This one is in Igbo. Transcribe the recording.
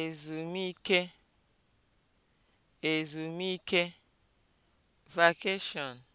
ezumike ezumike (vacation)